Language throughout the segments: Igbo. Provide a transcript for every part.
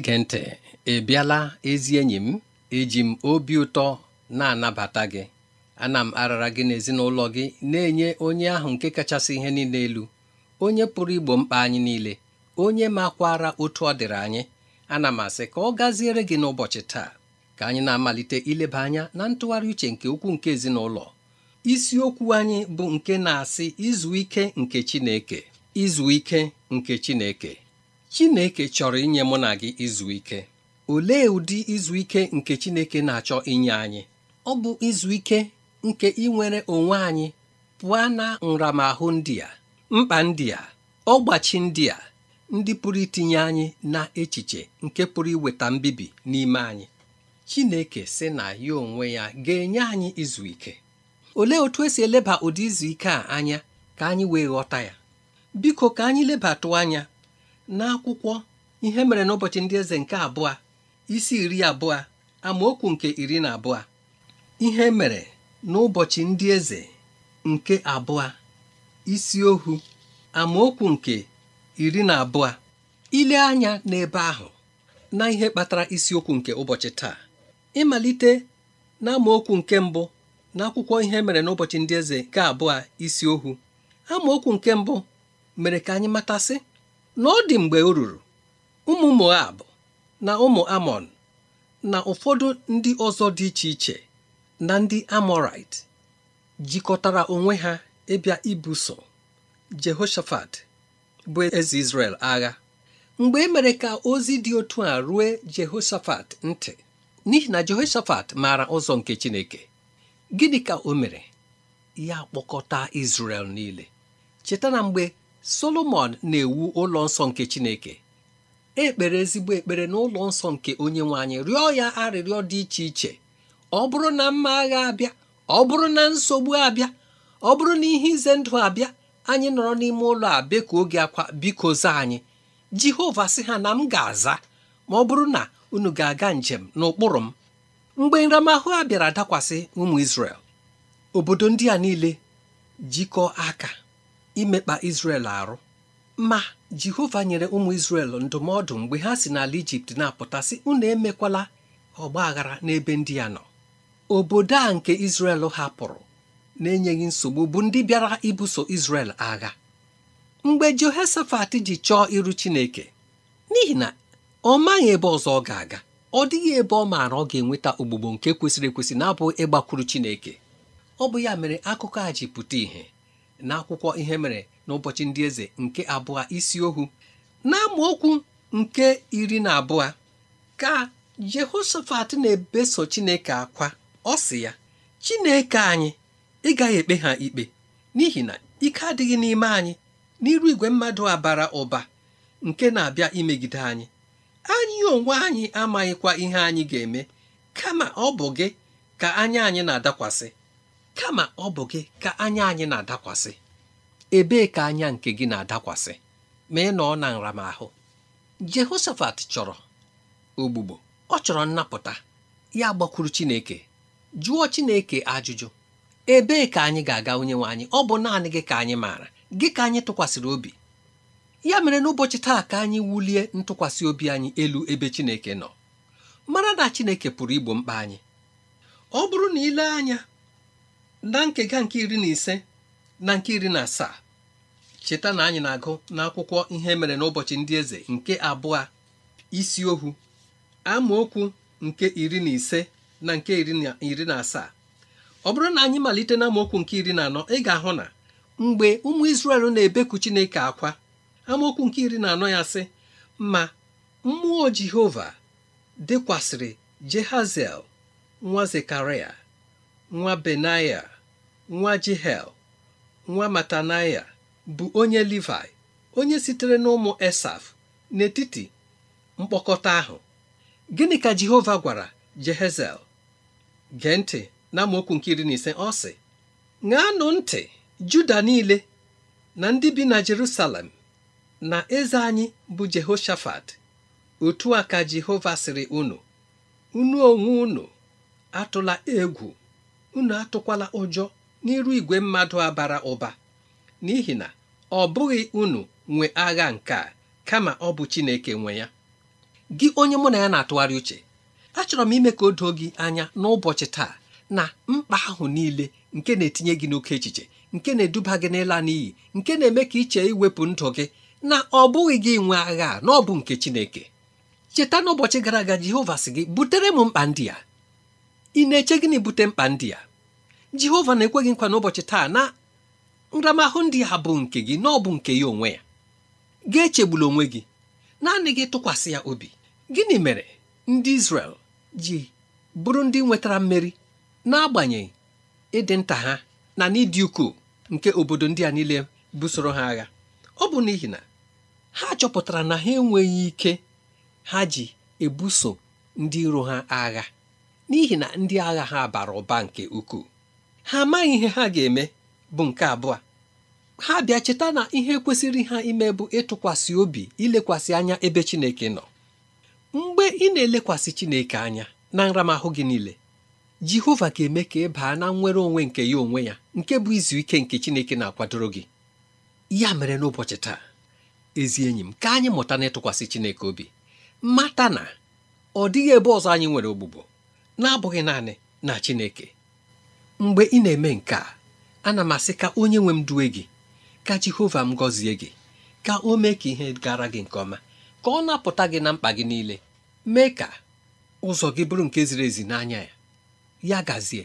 na-ege ntị ị bịala ezi enyi m eji m obi ụtọ na-anabata gị ana m arara gị n'ezinụlọ gị na-enye onye ahụ nke kachasị ihe niile elu onye pụrụ igbo mkpa anyị niile onye makwara otu ọ dịrị anyị ana m asị ka ọ gaziere gị n'ụbọchị taa ka anyị na-amalite ileba anya na ntụgharị uche nke ukwuu nke ezinụlọ isiokwu anyị bụ nke na-asị izu ike nke Chineke izu ike nke Chineke Chineke chọrọ inye mụ na gị izu ike olee ụdị izu ike nke Chineke na-achọ inye anyị ọ bụ izu ike nke inwere onwe anyị pụọ na nramahụ ndị a mkpa ndị a ọgbachi ndị a ndị pụrụ itinye anyị na echiche nke pụrụ iweta mbibi n'ime anyị Chineke sị na ya onwe ya ga-enye anyị izu ike olee otu esi eleba ụdị izu ike a anya ka anyị wee ghọta ya biko ka anyị lebatụ anya n'akwụkwọ ihe mere n'ụbọchị ndị eze nke abụọ isi iri abụọ amaokwu nke iri na abụọ ihe mere n'ụbọchị ndị eze nke abụọ isi ohu amaokwu nke iri na abụọ ile anya n'ebe ahụ na ihe kpatara isiokwu nke ụbọchị taa ịmalite na nke mbụ n'akwụkwọ ihe mere n'ụbọchị ndị eze nke abụọ isi ohu amaokwu nke mbụ mere ka anyị matasị na ọ dị mgbe o ruru ụmụ Moab na ụmụ Amon na ụfọdụ ndị ọzọ dị iche iche na ndị Amorite jikọtara onwe ha ịbịa ibuso Jehoshafat bụ eze Izrel agha mgbe e mere ka ozi dị otu a ruo Jehoshafat ntị n'ihi na Jehoshafat maara ụzọ nke Chineke gịnị ka o mere ya kpọkọta Izrel niile cheta na mgbe Solomọn na-ewu ụlọ nsọ nke Chineke ekpere ezigbo ekpere n'ụlọ nsọ nke onye nwe anyị rịọ ya arịrịọ dị iche iche ọ bụrụ na mma agha abịa ọ bụrụ na nsogbu abịa ọ bụrụ na ihe ize ndụ abịa anyị nọrọ n'ime ụlọ a ka oge akwa biko zaa anyị Jehova sị ha na m ga-aza ma ọ bụrụ na unu ga-aga njem n'ụkpụrụ m mgbe nramahụ a bịara dakwasị ụmụ isrel obodo ndị a niile jikọọ aka imekpa isrel arụ ma Jehova nyere ụmụ isrel ndụmọdụ mgbe ha si n'ala Ijipt na-apụta sị unu emekwala ọgba aghara n'ebe ndị ya nọ obodo a nke Izrel hapụrụ na-enyeghị nsogbu bụ ndị bịara ibuso isrel agha mgbe Jehoshafat ji chọọ iru Chineke n'ihi na ọ maghị ebe ọzọ ọ ga-aga ọ dịghị ebe ọ maara ọ ga-enweta ogbugbo nke kwesịrị ekwesị na abụ ịgbakwuru Chineke ọ bụ ya mere akụkọ a ji pụta ìhè n'akwụkwọ ihe mere n'ụbọchị ndị eze nke abụọ isi ohu na okwu nke iri na abụọ ka Jehoshafat na-ebeso Chineke akwa ọ sị ya Chineke anyị ị gaghị ekpe ha ikpe n'ihi na ike adịghị n'ime anyị n'iru igwe mmadụ a bara ụba nke na-abịa imegide anyị anyị onwe anyị amaghịkwa ihe anyị ga-eme kama ọ bụ gị ka anya anyị na-adakwasị kama ọ bụ gị ka anya anyị na-adakwasị ebee ka anya nke gị na-adakwasị ma ị nọ na nramahụ Jehoshafat chọrọ ogbugbo ọ chọrọ nnapụta ya gbakwuru Chineke jụọ Chineke ajụjụ ebee ka anyị ga-aga onye nwe anyị ọ bụ naanị gị ka anyị maara gị ka anyị tụkwasịrị obi ya mere n'ụbọchị taa ka anyị wulie ntụkwasị obi anyị elu ebe Chineke nọ mara na Chineke pụrụ igbo mkpa anyị ọ bụrụ na ile anya na nkega nke iri na ise na nke iri na asaa cheta na anyị na-agụ n'akwụkwọ ihe mere n'ụbọchị ndị eze nke abụọ isi ohu amaokwu nke iri na ise na nke iri na asaa ọ bụrụ na anyị malite na amaokwu nke iri na anọ ị ga-ahụ na mgbe ụmụ Izrel na-ebeku Chineke akwa amaokwu nke iri na anọ ya sị ma mmụọ Jehova dịkwasịrị Jehaziel nwa Zekaraya nwa benaya nwa jihel nwa matanaya bụ onye livai onye sitere n'ụmụ esaf n'etiti mkpokọta ahụ gịnị ka jehova gwara jehezel gee ntị na amaokwu nke iri na ise ọ sị ṅaanụ ntị juda niile na ndị bi na jerusalem na eze anyị bụ jehoshafat otu a ka jehova sịrị unu unu onwe unu atụla egwu unu atụkwala ụjọ n'iru igwe mmadụ a bara ụba n'ihi na ọ bụghị unu nwe agha nke a kama ọ bụ Chineke nwe ya gị onye mụ na ya na-atụgharị uche achọrọ m ime ka o doo gị anya n'ụbọchị taa na mkpa ahụ niile nke na-etinye gị n'oke echiche nke na-eduba gị n'ịla n'iyi nke na-eme ka iche iwepụ ndụ gị na ọ bụghị gị nwe agha na ọ bụ nke Chineke cheta n'ụbọchị gara aga Jehova sị gị butere m mkpa ndị a ị na-eche gịnị bute mkpa ndị a jehova na-ekweghị nkwa n'ụbọchị taa na nramahụ ndị a bụ nke gị na ọ bụ nke ya onwe ya ga echegbula onwe gị naanị gị tụkwasị ya obi gịnị mere ndị Izrel ji bụrụ ndị nwetara mmeri n'agbanyeghị ịdị nta ha na n'ịdị ukwuu nke obodo ndị a niile busoro ha agha ọ bụ n'ihi na ha chọpụtara na ha enweghị ike ha ji ebuso ndị iro ha agha n'ihi na ndị agha ha bara ụba nke ukwuu ha amaghị ihe ha ga-eme bụ nke abụọ ha bịa cheta na ihe kwesịrị ha ime bụ ịtụkwasị obi ilekwasị anya ebe Chineke nọ mgbe ị na-elekwasị Chineke anya na nramahụ gị niile Jehova ga-eme ka ị baa na nnwere onwe nke ya onwe ya nke bụ izu ike nke Chineke na-akwadoro gị ya mere n'ụbọchị taa ezi enyi m ka anyị mụta na ịtụkwasị Chineke obi mata na ọ dịghị ebe ọzọ anyị nwere ogbugbo na-abụghị naanị na Chineke mgbe ị na-eme nke a ana m asị ka onye nwe m duwe gị ka Jehova m gọzie gị ka o mee ka ihe gara gị nke ọma ka ọ napụta gị na mkpa gị niile mee ka ụzọ gị bụrụ nke ziri ezi n'anya ya ya gazie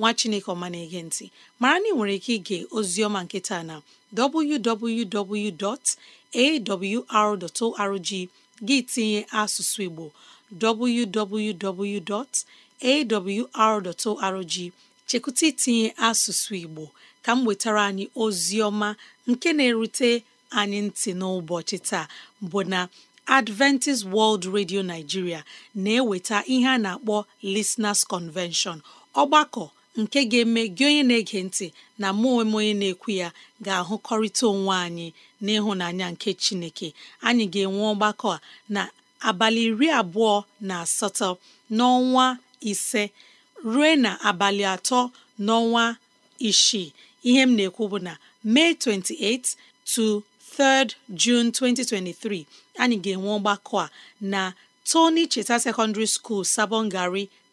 nwa chineke ọma na-ege ntị mara na ị nwere ike ige oziọma nketa na www.awr.org gị tinye asụsụ igbo www.awr.org chekwụta itinye asụsụ igbo ka m wetara anyị oziọma nke na-erute anyị ntị n'ụbọchị taa bụ na Adventist World Radio Nigeria na-eweta ihe a na-akpọ Listeners Convention ọgbakọ nke ga-eme gị onye na-ege ntị na mụ onwe onye na-ekwu ya ga-ahụkọrịta onwe anyị n'ịhụnanya nke Chineke anyị ga-enwe ọgbakọ a na abalị iri abụọ na asatọ n'ọnwa ise ruo na abalị atọ n'ọnwa isii ihe m na-ekwu bụ na May 28 to 3rd 2023 anyị ga-enwe ọgbakọ a na Tony Cheta Secondary School Sabongari.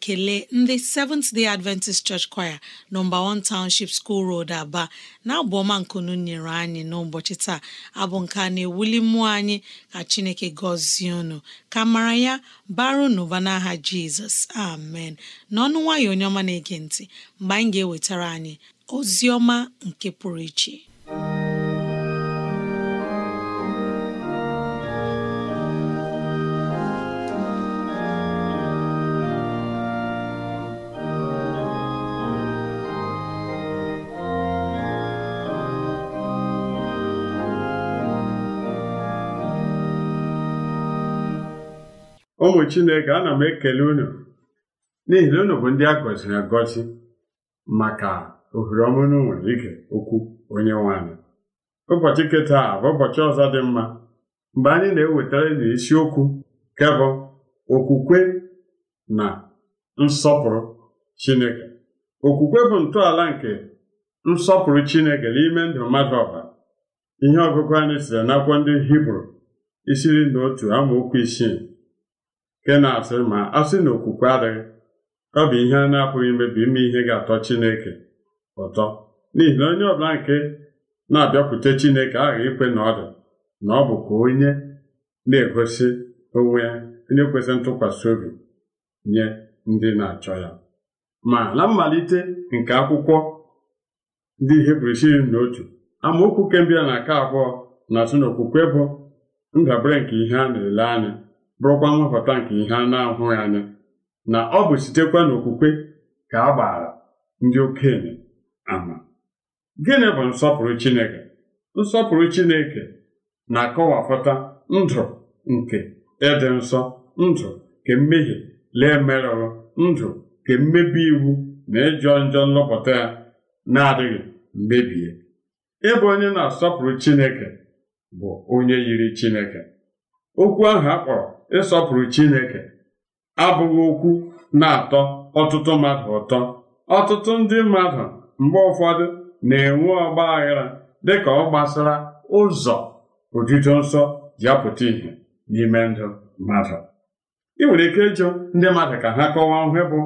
kelee ndị Seventh Day Adventist Church Choir nọmba 1 Township School Road Aba na-abụ ọma nkunu nyere anyị n'ụbọchị taa abụ nke a na-ewuli mmụọ anyị ka Chineke gọzie unu ka mara ya baro n'ụba n'aha Jizọs amen n'ọnụ nwayọ onye ọma na-ege ntị mgbe anyị ga-ewetara anyị ozi ọma nke pụrụ iche ụmụ chineke ana m ekele unu n'ihi na unu bụ ndị a gọziri agọzi maka ohere ọma unu nwere ike okwu onye nwanyị ụbọchị nketa a bụ ụbọchị ọzọ dị mma mgbe anyị na-ewetara n'isiokwu kebụ okwukwe na nsọpụrụ chineke okwukwe bụ ntọala nke nsọpụrụ chineke n'ime ndụ mmadụ ọbụla ihe ọgụgụ anyị siri n'akwụkwọ ndị hibru isiri na otu amaokwu isii nke na-asị ma a sị na okwukwe adịghị ọ bụ ihe a na-apụghị imebi ime ihe ga-atọ Chineke ụtọ n'ihi na onye ọbụla nke na-abịakwute Chineke aghaghị ikwe na ọ dị na ọ bụ ka onye na-egosi onwe ya onye kwesịrị ntụkwasị obi nye ndị na-achọ ya ma na mmalite nke akwụkwọ ndị Hibru si na otu amaokwu kembịa na nke abụọ na-asị na okwukwe bụ ndabere nke ihe a na-ele anya bụrụkwa nhọpụta nke ihe a na-ahụghị anya na ọ bụ sitekwa n'okwukwe ka a gbaara ndị okenye ama gịnị bụ nsọpụrụ Chineke nsọpụrụ Chineke na-akọwapụta ndụ nke ịdị nsọ ndụ nke mmehie lee merụrụ ndụ nke mmebi iwu na ịjọ njọ nlọpụta ya na-adịghị mebie ịbụ onye na-asọpụrụ Chineke bụ onye yiri Chineke okwu ahụ a kpọrọ ịsọpụrụ Chineke abụghị okwu na-atọ ọtụtụ mmadụ ụtọ ọtụtụ ndị mmadụ mgbe ụfọdụ na-enwe ọgba aghara dịka ọ gbasara ụzọ otuto nsọ ji apụta ìhè n'ime ndụ mmadụ ị nwere ike ịjụ ndị mmadụ ka ha kọwaa ihe bụ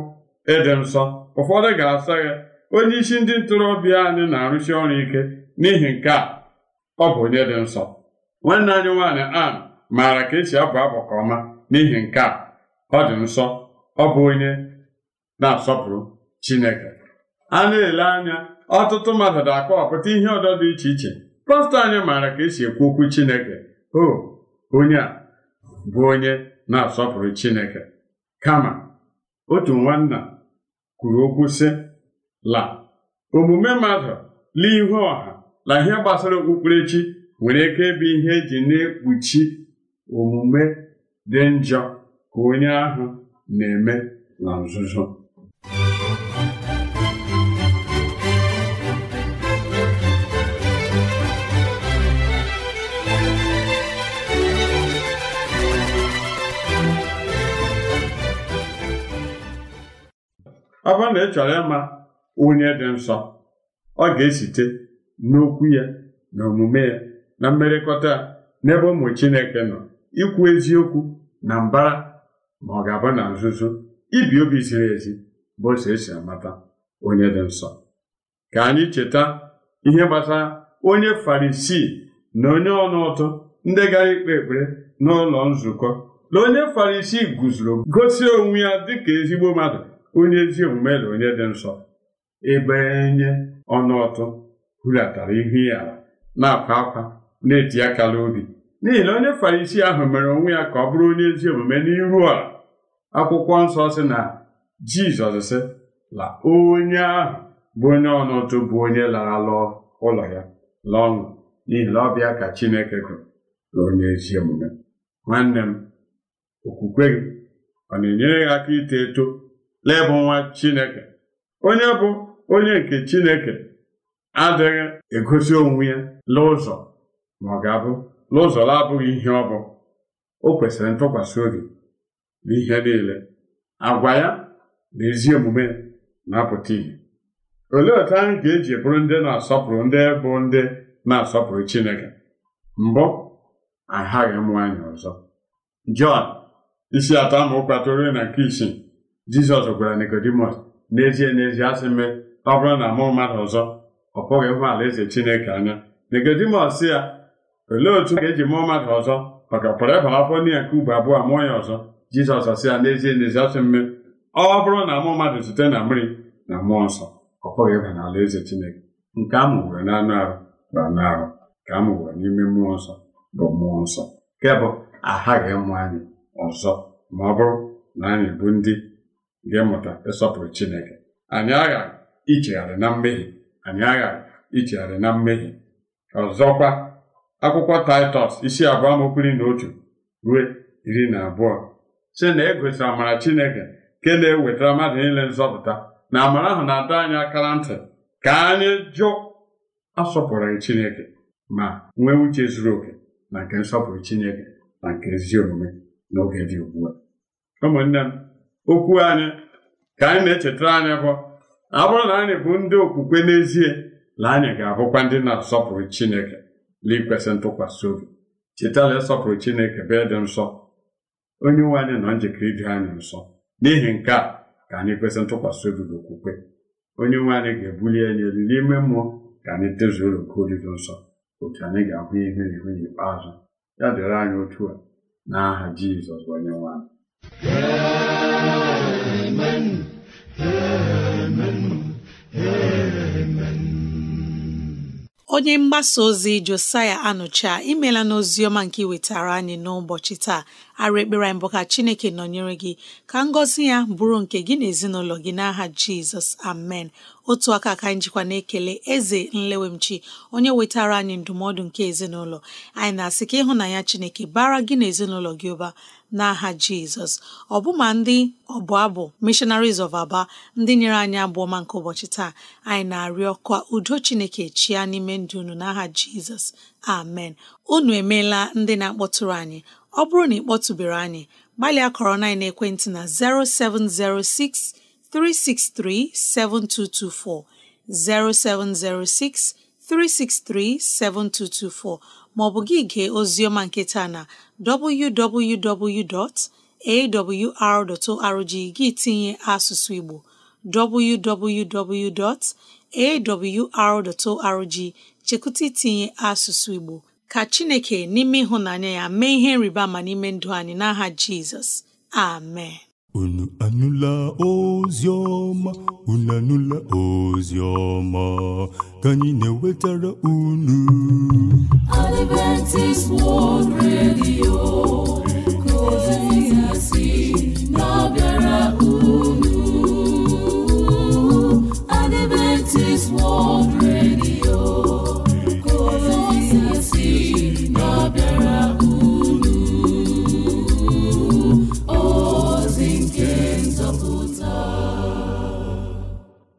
ịdị nsọ ụfọdụ ga-asa ya onye isi ndị ntorobịa anyị na-arụsi ọrụ ike n'ihi nke a ọ bụ onye dị nsọ nwanne anyị nwaanyị a maara ka esi abụ abụ ka ọma n'ihi nke a ọ dị nsọ ọ bụ onye na-asọpụrụ Chineke a na-ele anya ọtụtụ mmadụ na-akọwapụta ihe ọdọ dị iche iche pastọ anyị maara ka esi ekwu okwu Chineke o onye a bụ onye na-asọpụrụ Chineke kama otu nwanna kwuru okwu sị la omume mmadụ la ihu ọha na ihe gbasara okpukperechi nwere ike ịbụ ihe eji na-ekpuchi omume dị njọ ka onye ahụ na-eme na nzuzo ọ na ị chọrọ ịma onye dị nsọ ọ ga-esite n'okwu ya na omume ya na mmerịkọta ya n'ebe ụmụ Chineke nọ ikwu eziokwu na mbara ma ọ ga-abụ na nzuzo ibi obi ziri ezi bụ ụzọ esi amata onye dị nsọ ka anyị cheta ihe gbasara onye farisi na onye ọnụ ọtụ ndị gara ikpe ekpere n'ụlọ nzukọ na onye farisi guzoro gosi onwe ya dịka ezigbo mmadụ onye ezi omume na onye dị nsọ ebe ọnụ ọnụụtụ hulatara ihu ya na-akwa akwa na-eti aka n'obi n'ihi na onye farisi ahụ mere onwe ya ka ọ bụrụ onye ezi omume n'iru a akwụkwọ nsọ si na jizọs sị la onye ahụ bụ onye ọnọdụ bụ onye lara lụọ ụlọ ya la ọṅụ n'ihi na ọbịa ka chineke gụrụ na onye ezi omume nwanne m okwukwe gị ọ na-enyere gị aka ito eto laịbụ nwa chineke onye bụ onye nke chineke adịghị egosi onwe ya la ụzọ ma ọ ga-abụ Lụzọla abụghị ihe ọ bụ o kwesịrị ntụkwasị obi n'ihe niile agwa ya na ezi omume na-apụta ihe olee otu anyị ga-eji bụrụ ndị na-asọpụrụ ndị bụ ndị na-asọpụrụ Chineke mbụ aghaghị m nwaanyị ọzọ Jọn isi atọ amaokwu atụrụ na nke isii Jizọs gwara Nikodimọs n'ezie n'ezie asị mme ọ bụrụ na mụ mmadụ ọzọ ọ pụghị ala alaeze Chineke anya Nikodimọs ya olee otu ga-eji mụọ mmadụ ọzọ maka pụrụ ịbara afọ n'ihi nke ugbo abụọ mụọ ya ọzọ jizọs asị ya n'ezie n'ezi asị mme ọ bụrụ na mụọ mmadụ site na mmiri na mmụọ nsọ ọ pụghị ịba n'ala eze chineke nke a mụwere n'anụ arụ bụ anụ arụ ka a mụwere n'ime mmụọ nsọ bụ mmụọ nsọ nke bụ aghaghị ịmụ anyị ọzọ ma ọ bụrụ na anyị bụ ndị ga-emụta ịsọpụrụ chineke anyị aghaghị ichegharị na mmehie anyị aghaghị ichegharị na mmehie ọzọkwa akwụkwọ taịtọs isi abụọ amaokwu na otu ruo iri na abụọ si na e gosiri amara chineke nke na-ewetara mmadụ niile nzọpụta na amara ahụ na-adọ anyị akara ntị ka anyị jụ asọpụrụghị chineke ma nwee uche zuru oke na nke nsọpụrụ chineke na nke ezi omume n'oge dị ugbu a ụmụnne m okwu anyị ka anyị na-echetara anyị bụ ọ bụrụ na anyị bụ ndị okwukwe n'ezie na anyị ga-abụkwa ndị na-asọpụrụ chineke na ikwesị ntụkwasị obi chetala ịsọpụrụ chineke bee dị nsọ onye nwe anyị nọ njikere ịdị anyị nsọ n'ihi nke a ka anyị kwesị ntụkwasị obi na okwukwe onye nwe anyị ga-ebuli anyị elu n'ime mmụọ ka anyị tezuoro nke oriri nsọ otu anyị ga-ahụ ihu na ihu n'ikpeazụ ya dịrị anyị otu a aha jizọs onye nwe anyị Amen. Amen. Amen. onye mgbasa ozi josaya anụcha imela e n'oziọma nke iwetara anyị n'ụbọchị taa arụ ekpere anyị bụ ka chineke nọnyere gị ka ngọzi ya bụrụ nke gị na ezinụlọ gị n'aha jizọs amen otu aka ka anyị jikwa na-ekele eze nlewemchi onye wetara anyị ndụmọdụ nke ezinụlọ anyị na-asị ka ịhụnanya chineke bara gị na ezinụlọ gị ụba n'aha jizọs ọbụma ndị ọbụ abụ missionaries of aba ndị nyere anyị abụọ nke ụbọchị taa anyị na-arịọ ka udo chineke chia n'ime ndụ unu n'aha jizọs amen unu emeela ndị na-akpọtụrụ anyị ọ bụrụ na ị kpọtụbere anyị gbalịa kọrọ na ekwentị na 0706 363 7224 0706 363 7224 maọbụ gị gee oziọma nketa na www.awr.org gị tinye asụsụ Igbo www.awr.org chekụta itinye asụsụ Igbo ka chineke n'ime ịhụnanya ya mee ihe nrịba ma n'ime ndụ anyị n'aha jizọs amen unu anụla ozi ọma unu anụla ozi ọma ka anyị na-ewetara unu Adventist World Radio na-abịara unu Adventist World Radio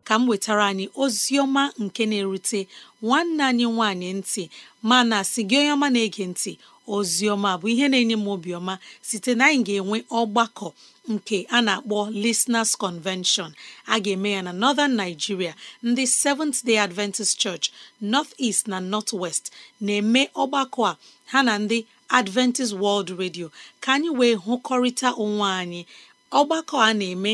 ka m wetara anyị Ozioma nke na-erute nwanne anyị nwanyị ntị mana si gị onye ọma na-ege ntị Ozioma bụ ihe na-enye m obiọma site na anyị ga-enwe ọgbakọ nke a na-akpọ Listeners Convention a ga-eme ya na Northern Nigeria ndị Seventh Day Adventist Church North East na North West na-eme ọgbakọ a ha na ndị Adventist World Radio ka anyị wee hụkọrịta onwe anyị ọgbakọ a na-eme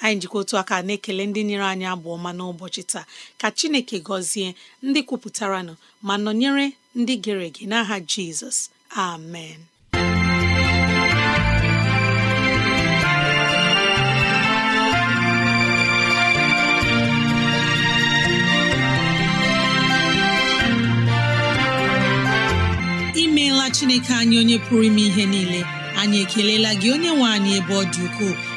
anyị jikọ otu aka na-ekele ndị nyere anyị abụ ọma n'ụbọchị taa ka chineke gọzie ndị kwupụtaranụ ma nọnyere ndị gere ege n'aha jizọs amen imeela chineke anyị onye pụrụ ime ihe niile anyị ekelela gị onye nwe anyị ebe ọ dị ukwuu